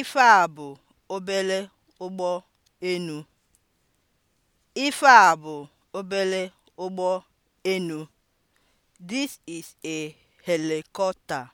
Ife a bụ obere ụgbọ enu. Ife a bụ obere ụgbọ enu. This is a helicopter.